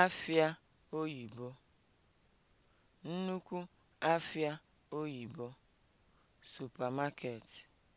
afịa oyibo, nnukwu afịa oyibo (supermarket)